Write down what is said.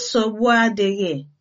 nsogbu adịghị